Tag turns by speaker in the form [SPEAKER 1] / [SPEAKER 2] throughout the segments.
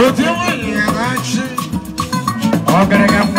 [SPEAKER 1] Vou ter uma linha, Agregamos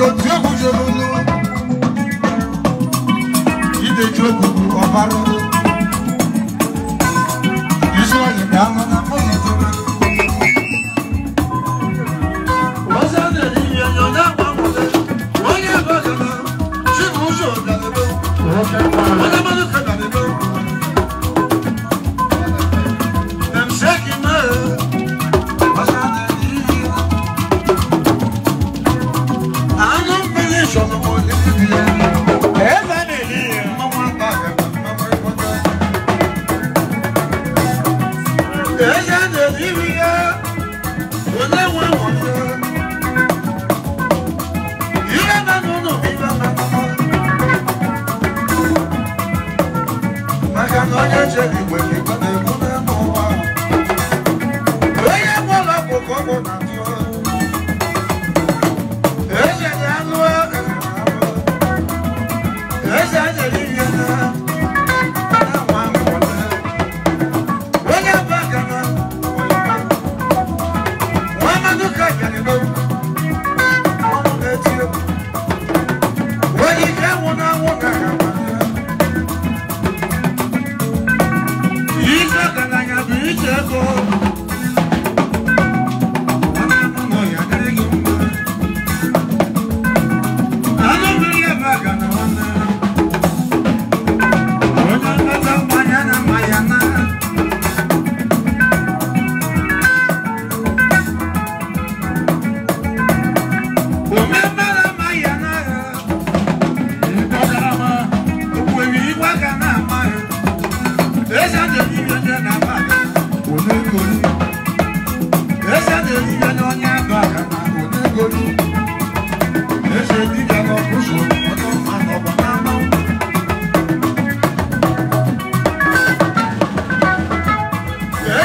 [SPEAKER 1] ìdòtí òkùnjẹ lónú ìdèjì òkùnkùn ọ̀bá lónú ìṣúná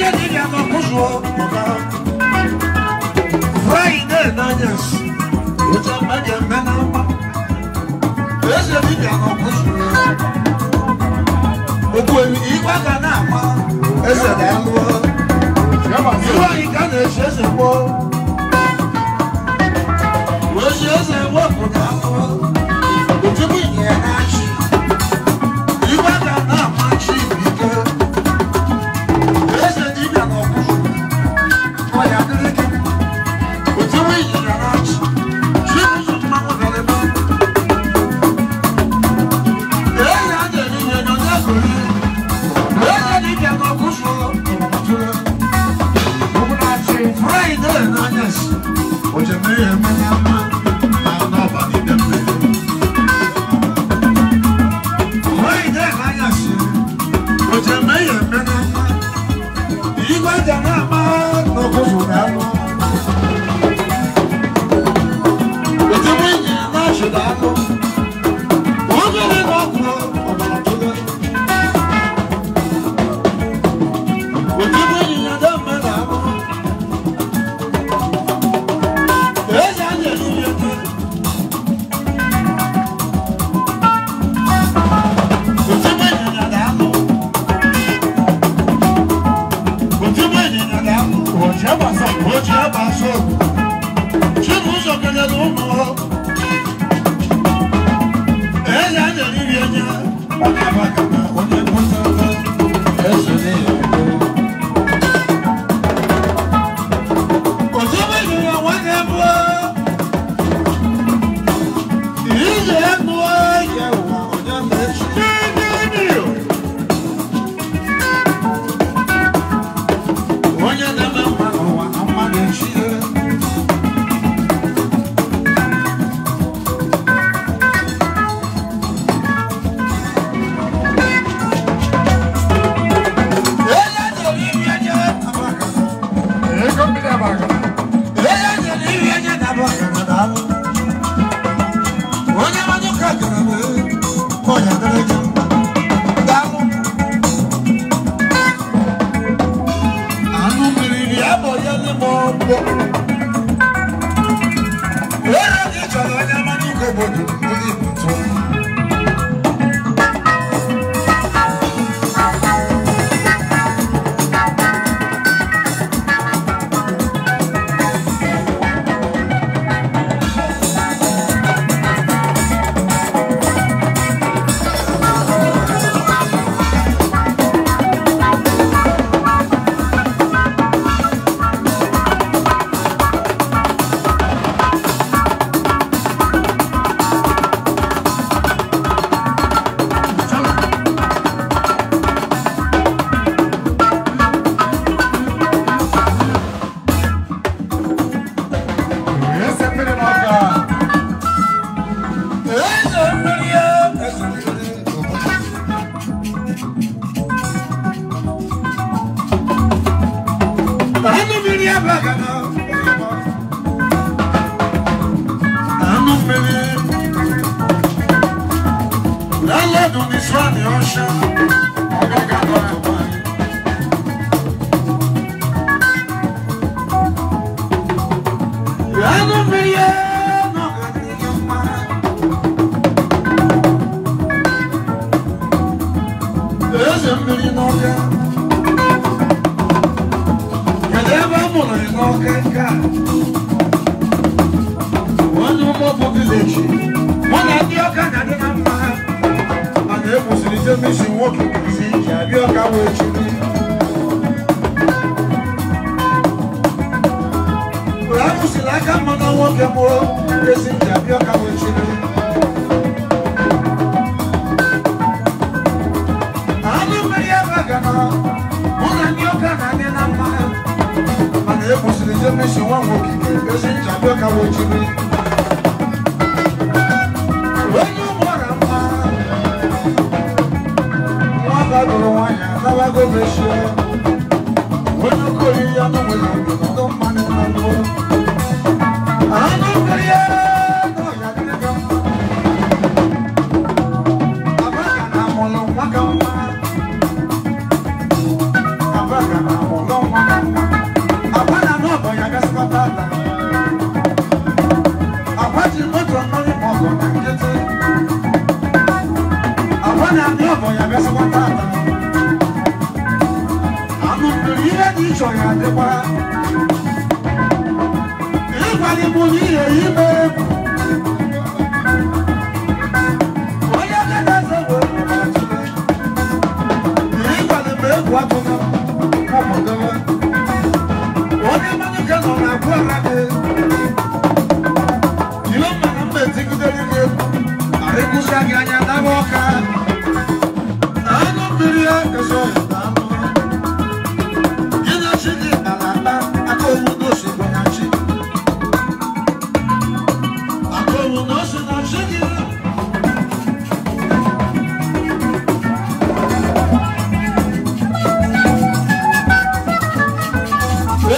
[SPEAKER 1] Ije ni ya no kuzo oka. Friday na yes. Uta ma de mena. Ije ni ya no kuzo. Oku emi ipa ka na ma. Ese da mu. Iwa ika na ese se po. Wo se se wo ku na mo. Otu mi ye na chi. garage.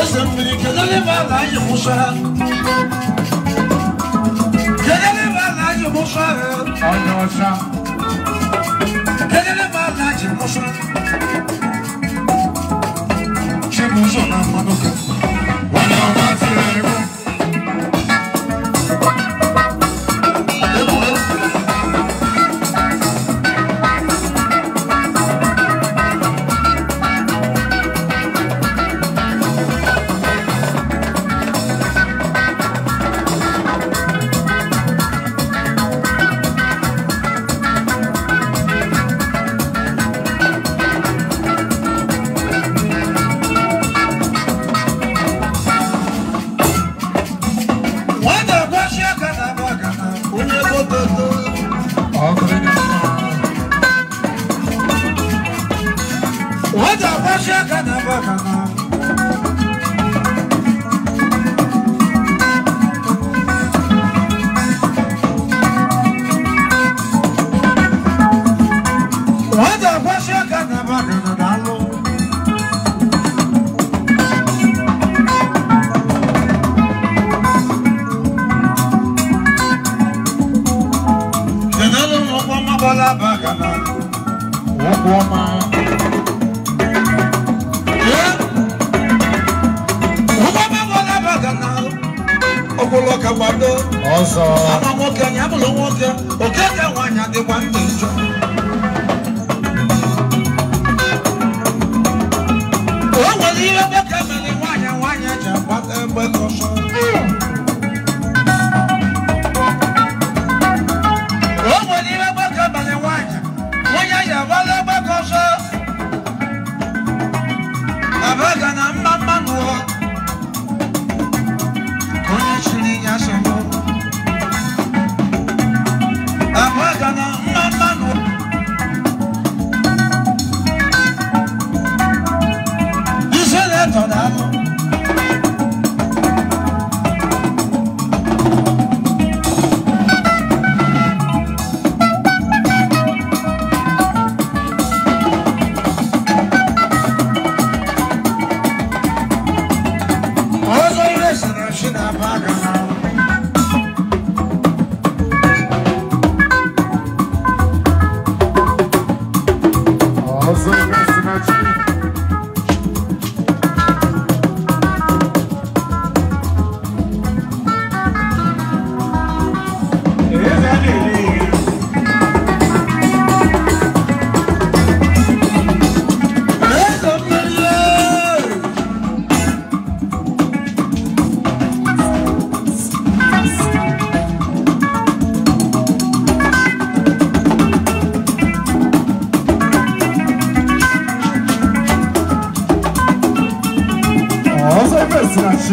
[SPEAKER 1] Kızım bir kederli bana yumuşak kederli bana yumuşak Haydi hoşça Kenarı bana yumuşak Kim uzun aman o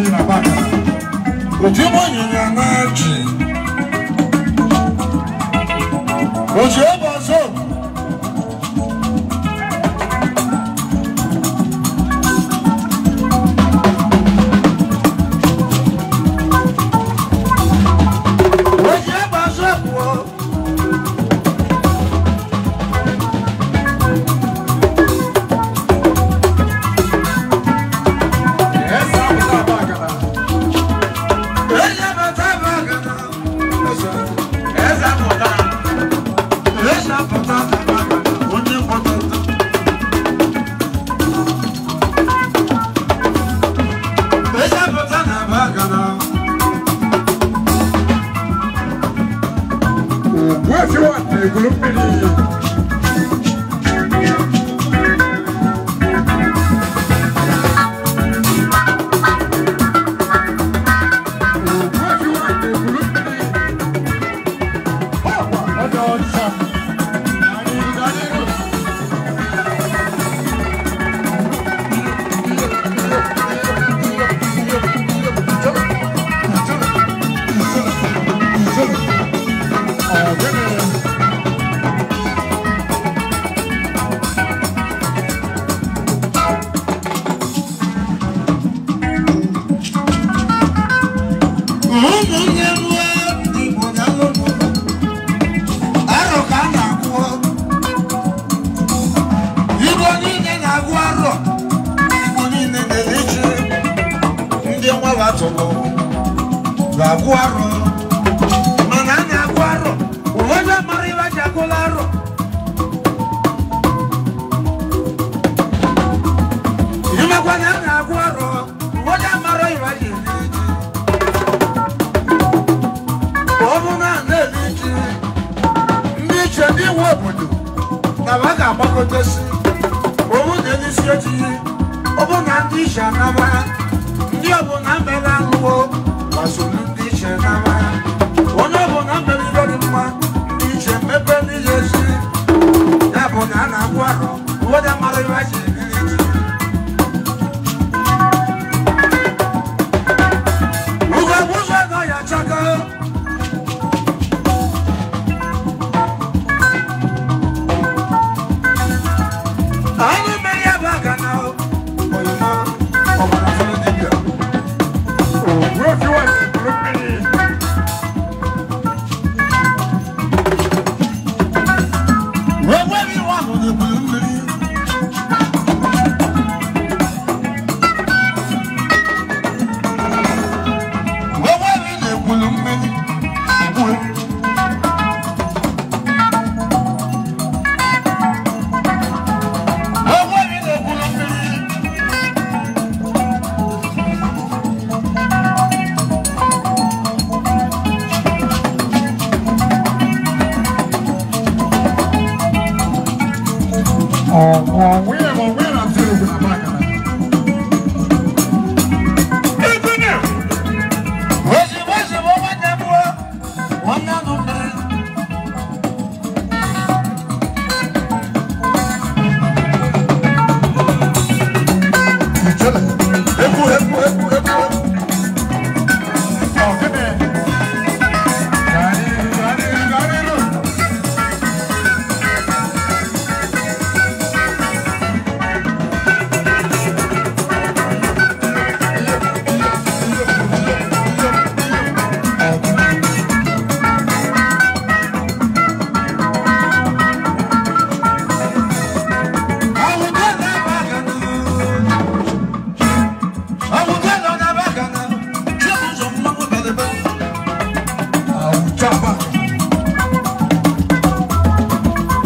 [SPEAKER 1] ji na baka oji gbanyere na ji ọzọ don't na onyeisi ojii ọbụ na ndị ishe anaba ndị ọbụla mere anụwo gbasoro ndị ishe anaba onye ọbụla mere ihe dị mma ndị iche mmepe n'ihe ezi ya bụ na a na-agwụ ahụ ụwọda mara iwe ji Oh, oh, oh.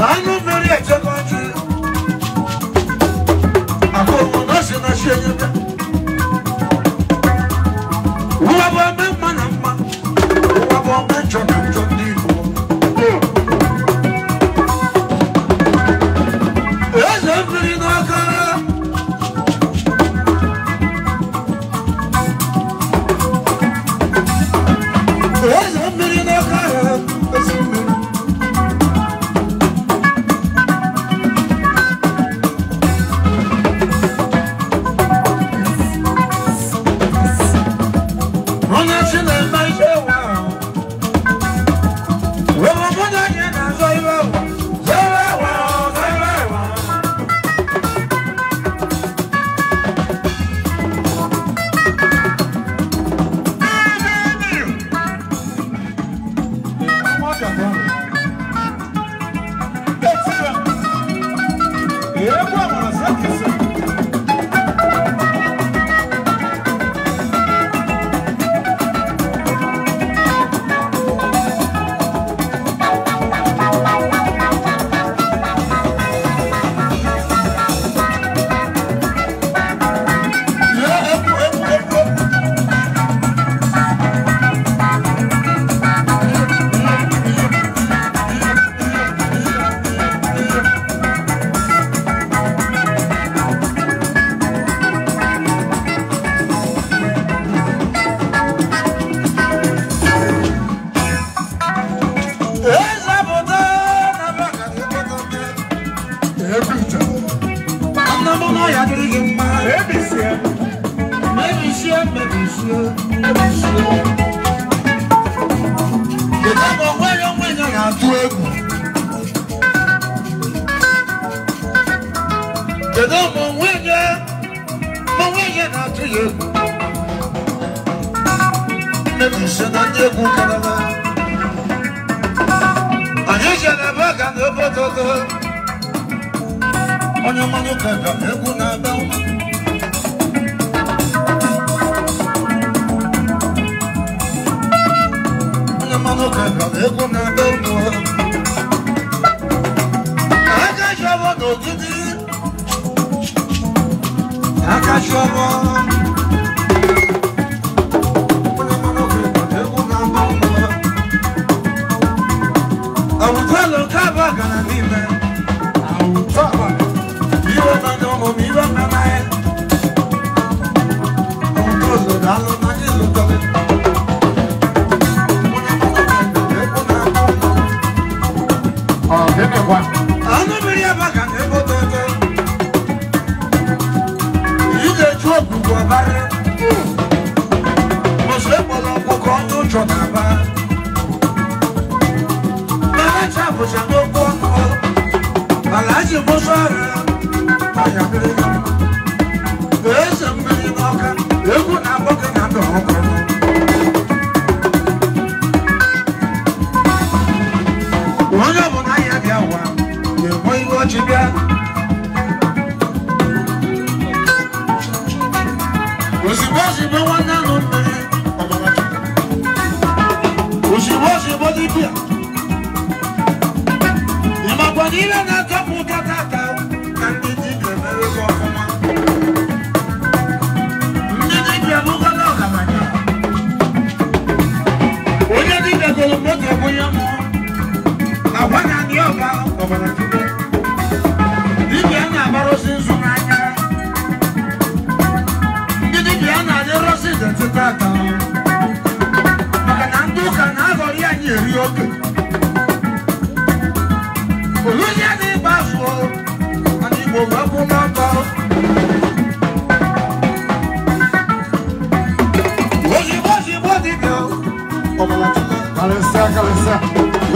[SPEAKER 1] I know nje ku kanana anyesha na baga Kolo kaba gana nime Awu taba Iwe na nyomo miwe na ti bó sọ̀rọ̀ àyàgbé. Bẹ́ẹ̀ sẹ́mi. Obalatuma, Kalesa, Kalesa.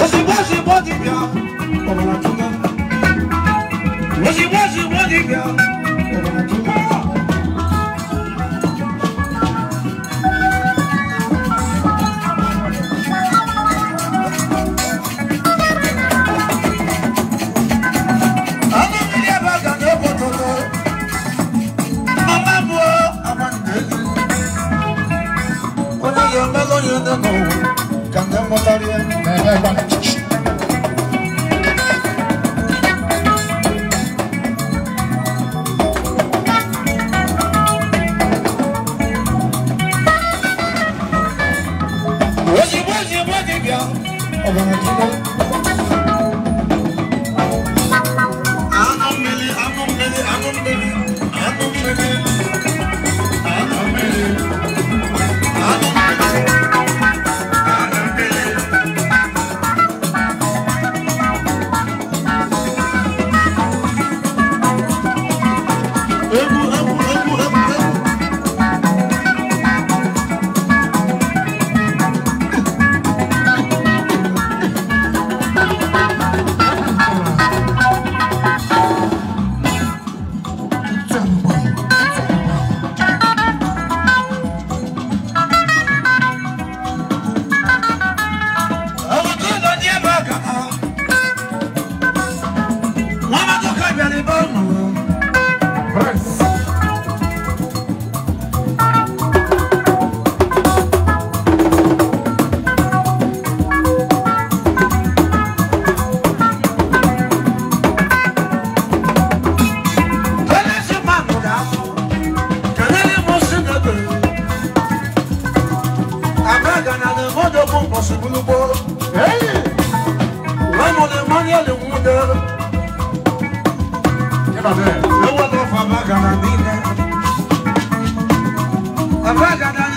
[SPEAKER 1] Oshibo, Oshibo, Dibia. Obalatuma. Oshibo, Oshibo, Dibia. Obalatuma. I'm other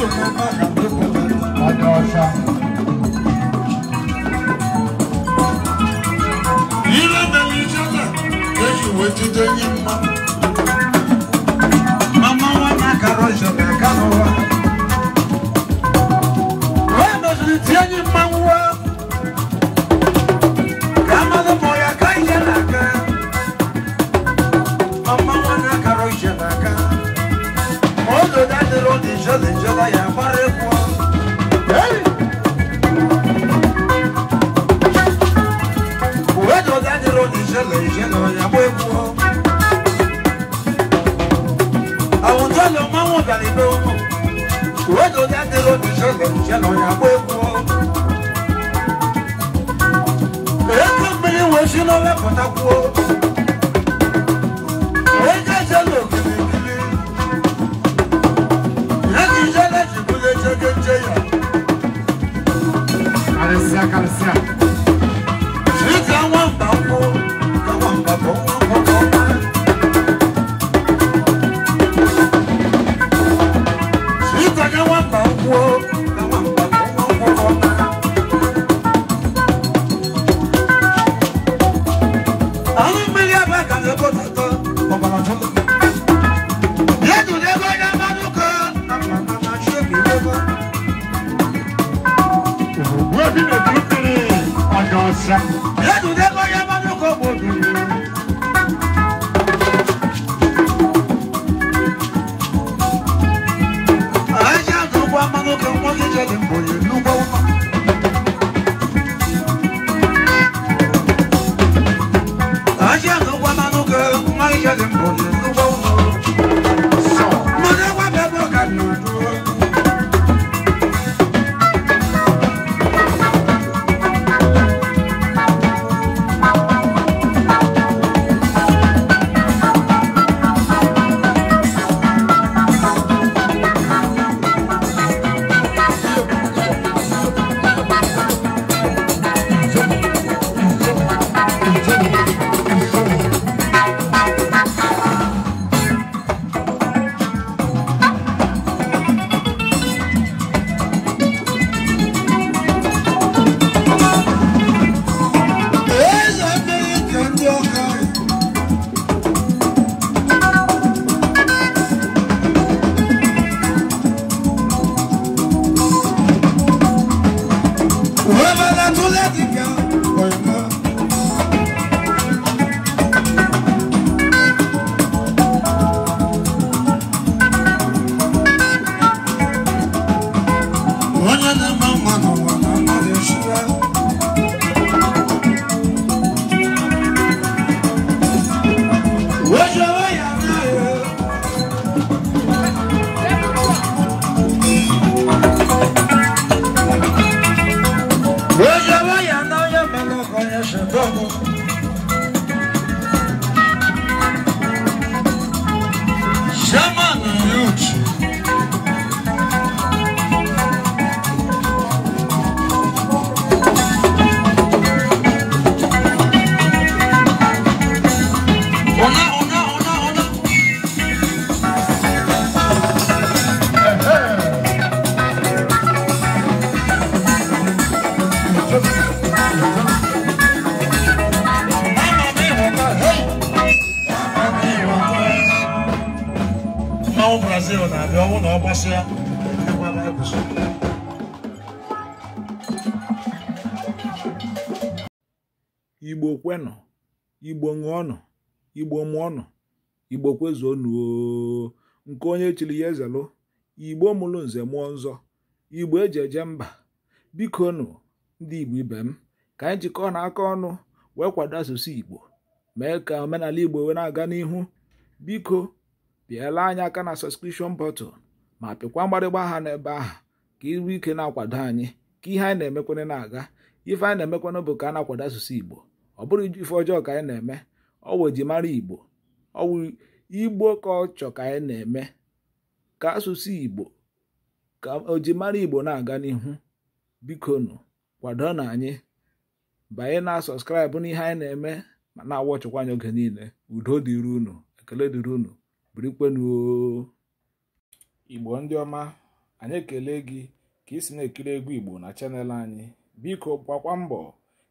[SPEAKER 1] Ile bẹ̀rẹ̀ ìṣẹ́lẹ̀, èyí ìwé jíjẹ́ yín máa.
[SPEAKER 2] igbo mụọnụ igbo kwezuonuo nke onye chiri ya ezelụ igbo mụrụ nze mụọ nzọ igbo eji eje mba biko nụ ndị igbo ibe m ka anyị jikọ na aka ọnụ wee kwado asụsụ igbo mee ka omenala igbo wee na-aga n'ihu biko bịala anyị aka na sọskripshọn bọtụl ma pịkwa mgbarịgba aha n'ebe ahụ ka iru ike na-akwado anyị ka ihe anyị na-emekwana na-aga ife anyị na-emekwana bụ ka a na-akwado asụsụ igbo ọ bụrụ ife ọjọọ ka anyị na-eme ọwụ mara igbo ọwụ igbo ka ọ chọ ka anyị na-eme ka asụsụ igbo ka ojimara igbo na-aga n'ihu bikonu kwado na anyị banye na sọskraịbụ n'ihe anyị na-eme ma na-awọ chụkwa anyị oge niile udo dịrị unu ekele dịrị unu birikwenuo igbo ndị ọma anyị ekele gị ka ị si na-ekiri egwu igbo na chanel anyị biko gbakwa mbọ